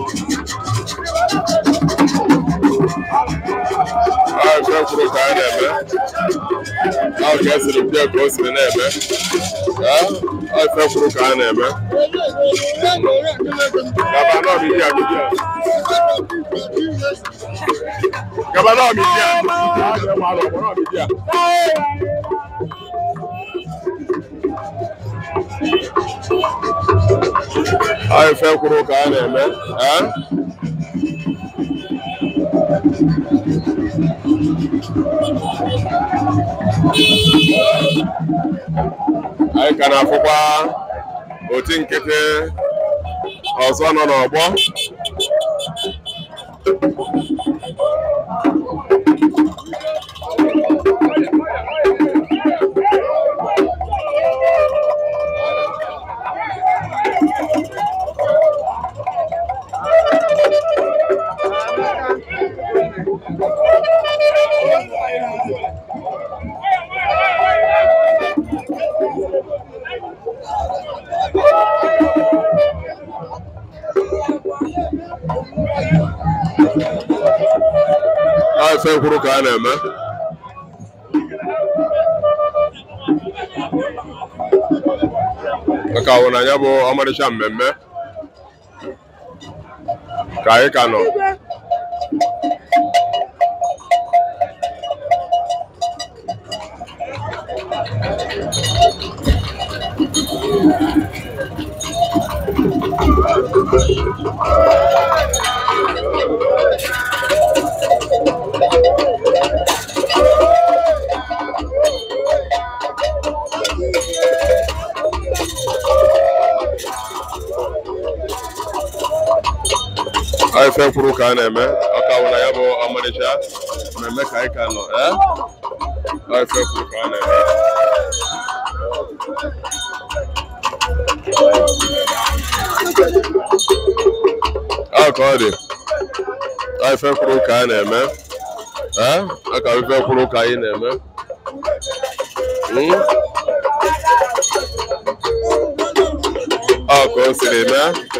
ahụ chọkwuru ka a na-eme ahụ ka esiri bịa ka o siri na-eme ahụ chọkwuru ka a na-eme gabanọ bụ ihe ya gabanọ bụ ihe Thank you. ife kwuru ka a na-eme anyị ka na-afụkwa oti nkịtị ọzọ nọ n'ọgbọ fɛn kwuru ka a na-eme maka awụ na ya bụ ọmarịcha mmemme ka anyị ka nọ Thank you. a ye fɛn furu kan dɛ aw ka wala a malaysia mɛ n bɛ ka ye kan nɔ ɛ aw ye fɛn furu kan dɛ. aw ye fɛn furu kan a ka ife ka anyị na-eme ọ ka o